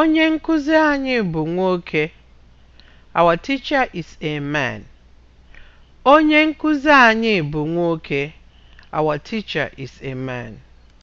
Onye nkuzi anyị bụ nwoke. Our teacher is a man. Onye nkuzi anyị bụ nwoke. Our teacher is a man.